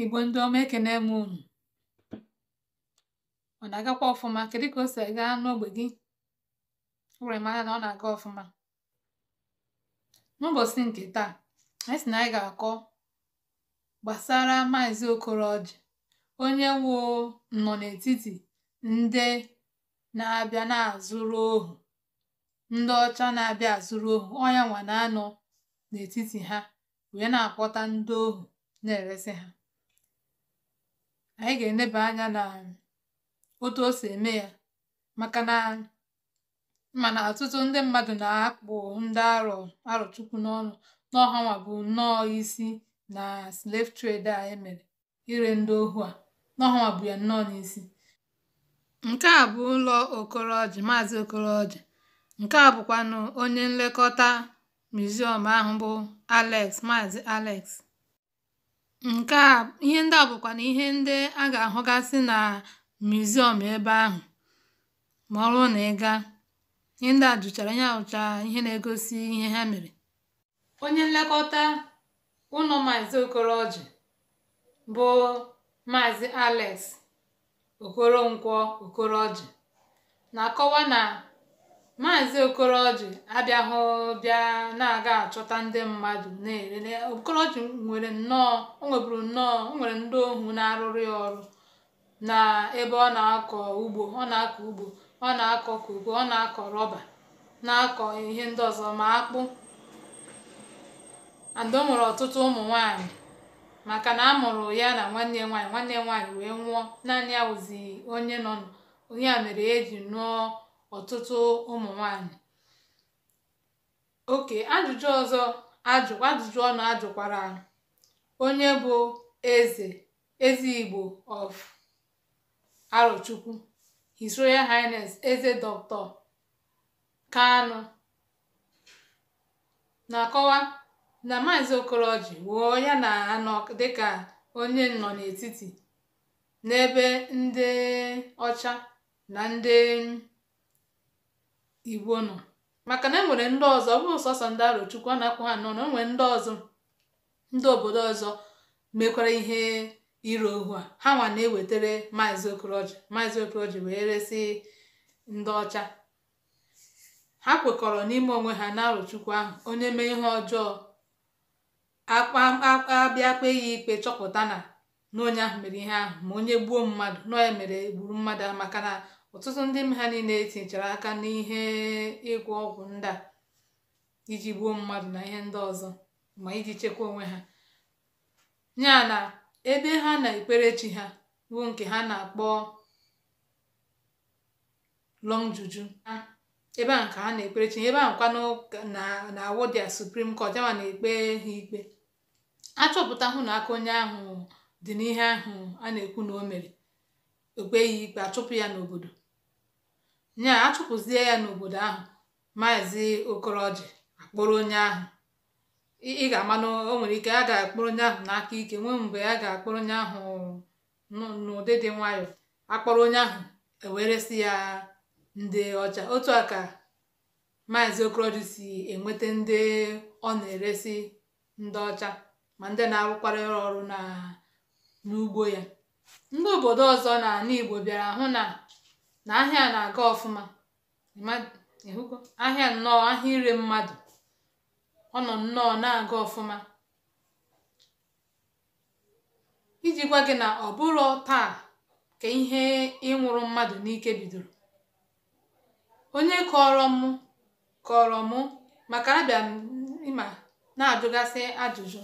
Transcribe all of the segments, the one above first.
Igbo ndị ọma ekene m unu. Ọ na-agakwa ọfụma? Kedụ ka o si aga n'ogbe gị? O were mara na ọ na-aga ọfụma. N'ụbọchị nke taa, anyị sị na anyị ga-akọ gbasara Maazị Okoroji onye wụ nọ n'etiti ndị na-abịa na-azụrụ ohu, ndị ọcha na-abịa azụrụ ohu. ọnya nwa na-anọ n'etiti ha wee na-akpọta ndị ohu na eresị ha. anyị ga-eneba anya na otu o si eme ya maka na mana ọtụtụ ndị mmadụ na-akpụ ndị arọ arọchukwu n'ọnụ n'ọhanwa bụ nnọọ isi na slave trade a emere ire ndị ohu a n'ọhanwa bụ ya nnọọ n'isi nke a bụ ụlọ okoroji maazị okoroji nke a bụkwanụ onye nlekọta miziọm ahụ bụ alex maazị alex Nke a ihe ndị a na ihe ndị a ga-ahụgasị na muziọm ebe ahụ, ma ọ bụrụ na ị Ihe ndị a jụchara ihe à ihe na-egosi ihe ha mere. Onye nlekọta ụnọ Okoro Okoroji bụ Maazị Alex Okoronkwọ Okoroji na-akọwa na Maazị Okoroji abịaghị bịa na-aga achọta ndị mmadụ na-elele Okoroji nwere nnọọ o nweburu nnọọ o nwere ndị ohu na-arụrụ ọrụ na ebe ọ na-akọ ugbo ọ na-akọ ugbo ọ na-akọ koko ọ na-akọ rọba na-akọ ihe ndị ọzọ ma akpụ and ọ nwere ọtụtụ ụmụ nwaanyị maka na a mụrụ ya na nwanne nwanyị nwaanyị nwanne nwaanyị wee nwụọ naanị ya wụzi onye nọ onye ya mere e ji nụọ ọtụtụ ụmụ nwanyị oke ajụjụ ọzọ ajụjụ ọnụ ajụkwara onye bụ eze eze Igbo of Arochukwu His Royal Highness eze Dr. Kanu na-akọwa na maazi Okoroji wụọ ya na anọ dịka onye nọ n'etiti n'ebe ndị ọcha na nde. igbo nọ maka na e nwere ndị ọzọ bụ sọsọ ndị arochukwu a na-akwụ ha nọ na onwere ndị ọzọ ndị obodo ọzọ mekwara ihe ire ohu a ha nwa na-ewetara maazị okoroji maazị okoroji wee resị ndị ọcha ha kwekọrọ n'ime onwe ha na arụchukwu ahụ onye mee ihe ọjọọ abịa kpee ya ikpe chọpụta na na onye ahụ mere ihe ahụ ma onye gbuo mmadụ na onye mere gburu mmadụ maka na ọtụtụ ndị m ha niile tinyechara aka n'ihe ịgwọ ọgwụ ndị a iji gbuo mmadụ na ihe ndị ọzọ ma iji chekwaa onwe ha ya na ebe ha na-ekpere chi ha bụ nke ha na-akpọ long juju ebe a nke ha na-ekpere ebe a nkwanụ na awodia suprim court ama na-ekpe ha ikpe achọpụta hụ na aka onye ahụ dị n'ihe ahụ a na-ekwu na o mere ekpe ya ikpe achụpụ ya n'obodo nye a ya n'obodo ahụ maazị okoroji akpọrọ onye ahụ ị ga-ama na o nwere ike a ga-akpọrọ onye ahụ n'aka ike nwee mgbe a ga-akpọrọ onye ahụ n'ụdị dị nwayọọ akpọrọ onye ahụ eweresi ya ndị ọcha otu a ka maazị okoroji si enweta ndị ọ na-eresi ndị ọcha ma ndị na-arụkwara ọrụ n'ugbo ya ndị obodo ọzọ na ala igbo bịara hụ na na ahịa a aga ọfụma ahịa nnọọ ahịa ire mmadụ ọnọ nnọọ na-aga ọfụma iji gwa gị na ọ bụrụ taa ka ihe ịnwụrụ mmadụ n'ike bidoro onye kọrọ mụ maka abịa ịma na-ajụgasị ajụjụ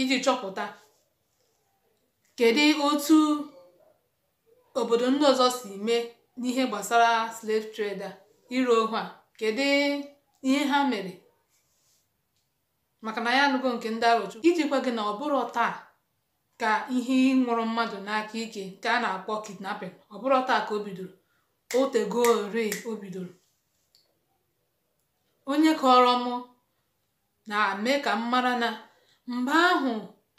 iji chọpụta kedu otu Obodo ndị ọzọ si mee n'ihe gbasara slave trade a ohu a, kedụ ihe ha mere maka na ya anụgo nke ndị arochukwu iji gwa gị na ọ taa ka ihe ịnwụrụ mmadụ n'aka ike nke a na-akpọ kidnapping ọ taa ka o bidoro otego ori o bidoro onye kọrọ mụ na-eme ka m mara na mgbe ahụ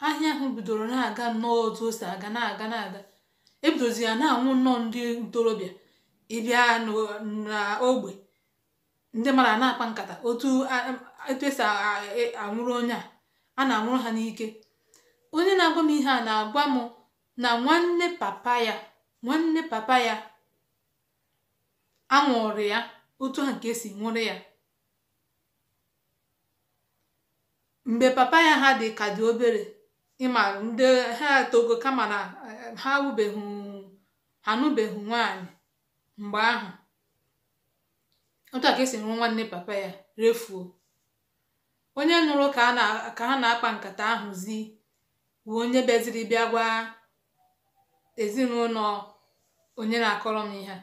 ahịa ahụ bidoro na-aga nnọọ otu o si aga na-aga na-aga ebidozi ya na-anwụ nnọọ ndị ntorobịa ịbịa n'ogbe ndị mara na-akpa nkata otu esi anwụrụ e, onye a a na-anwụrụ ha n'ike onye na-agwa m ihe a na-agwa m na nwanne papa ya nwanne papa ya anwụrụ ya otu ha nke si nwụrụ ya mgbe papa ya ha dị ka dị obere ịma ndị ha togo kama na ha awụbeghị ha anụbeghị nwaanyị mgbe ahụ otu a ka esi nrụ nwanne papa ya refuo onye nụrụ ka ha na-akpa nkata ahụzi bụ onye bịaziri bịa gwa ezinụlọ onye na-akọrọ m ihe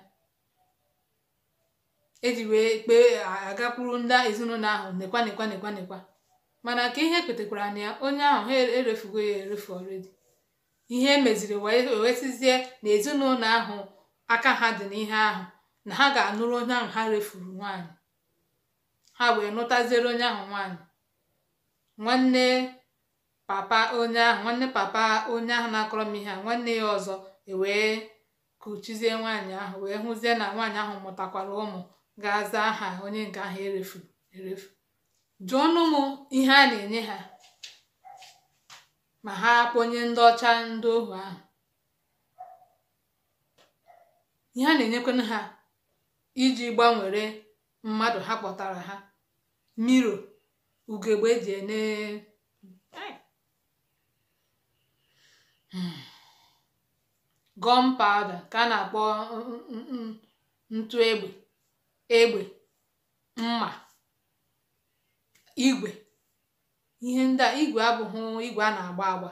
eji wee kpee agakwuru ndị ezinụlọ ahụ nekwa nekwa nekwa nekwa mana ka ihe kwetekwara na ya onye ahụ ha erefugo ya erefu ọredi ihe emeziri wee wesizie na ezinụlọ ahụ aka ha dị n'ihe ahụ na ha ga-anụrụ onye ahụ ha refuru nwanyị ha wee nụtaziere onye ahụ nwanyị nwanne papa onye ahụ nwanne papa onye ahụ na-akọrọ m ihe a nwanne ya ọzọ ewee kuchizie nwaanyị ahụ wee hụzie na nwaanyị ahụ mụtakwara ụmụ ga-aza aha onye nke ahụ erefu e erefu jụọnụ m ihe a na-enye ha ma ha kpọnye ndị ọcha ndị ohu ahụ ihe a na-enyekwanụ ha iji gbanwere mmadụ ha kpọtara ha miro ugegbe eji ene hmm. gọm pawda ka a na-akpọ mm, mm, mm, ntụ egbe egbe mma igwe ihe ndị à igwe a na agba agba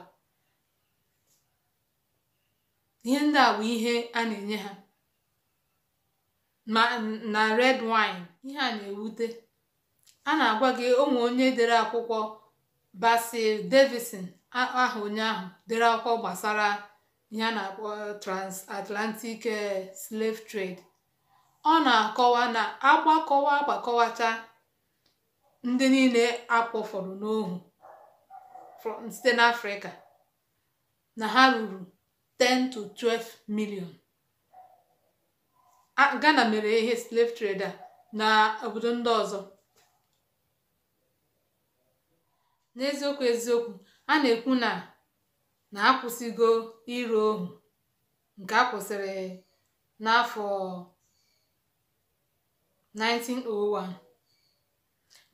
ihe ndị a bụ ihe a na-enye ha na red wine ihe a na-ewute a na-agwa gị ụmụ onye dere akwụkwọ Basil davison aha onye ahụ dere akwụkwọ gbasara ihe a na-akpọ transatlantic eh, slave trade ọ na-akọwa na agbakọwa agbakọwacha ndị niile a n'ohu site n'Afrịka na ha ruru 10 to 12 milion Ghana mere ihe slave trade a na obodo ndị ọzọ n'eziokwu eziokwu a na-ekwu na na akwụsịgo ire ohu nke a kwụsịrị n'afọ 1901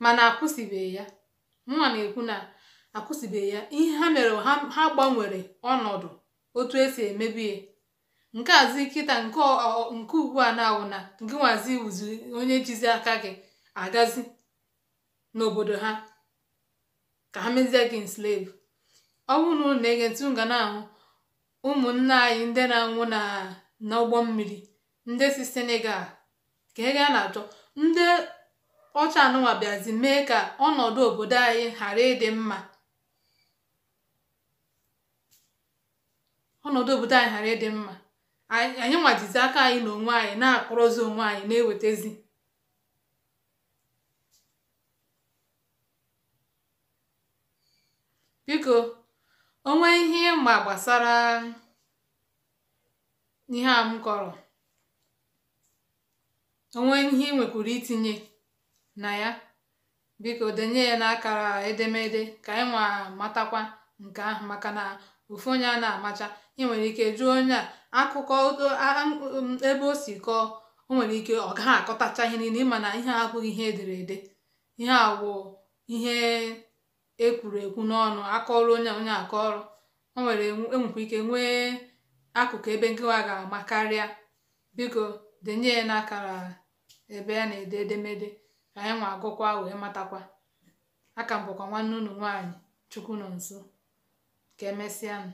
mana akwụsịbeghị ya nwa na-ekwu na akwụsịbeghị ya ihe ha mere ha gbanwere ọnọdụ otu esi emebie nke azi kịta nke ugbu a na-awụ na nke nwazi wuzi onye jizi aka gị agazi n'obodo ha ka ha mezie gị slave ọ bụrụ na ụlọ na-ege ntị na-ahụ ụmụnna anyị ndị na-anwụ na n'ụgbọ mmiri ndị si Senegal ka ị ga na-achọ ndị ọcha anụnwa bịazi mee ka ọnọdụ obodo anyị ghara ịdị mma anyị ghara aka anyị na onwe anyị na-akpọrọzi onwe anyị na-ewetezi biko onwe ihe ịma gbasara ihe a m kọrọ onwe ihe ị itinye na ya biko denye ya n'akara edemede ka anyị nwa matakwa nke ahụ maka na ofu onye a na-amacha ị nwere ike jụọ onye a akụkọ ebe o si kọọ o nwere ike ọ gaghị akọtacha ihe niile ịma na ihe abụghị ihe edere ede ihe awụ ihe ekwuru ekwu n'ọnụ akọrọ onye onye akọrọ o nwere enwekwa ike nwee akụkụ ebe nkịwa ga-ama karịa biko denye ya n'akara ebe a na-ede edemede anyị nwa agụkwa wee matakwa aka m nwanne unu nwaanyị chukwu nọ nso ka emesịanụ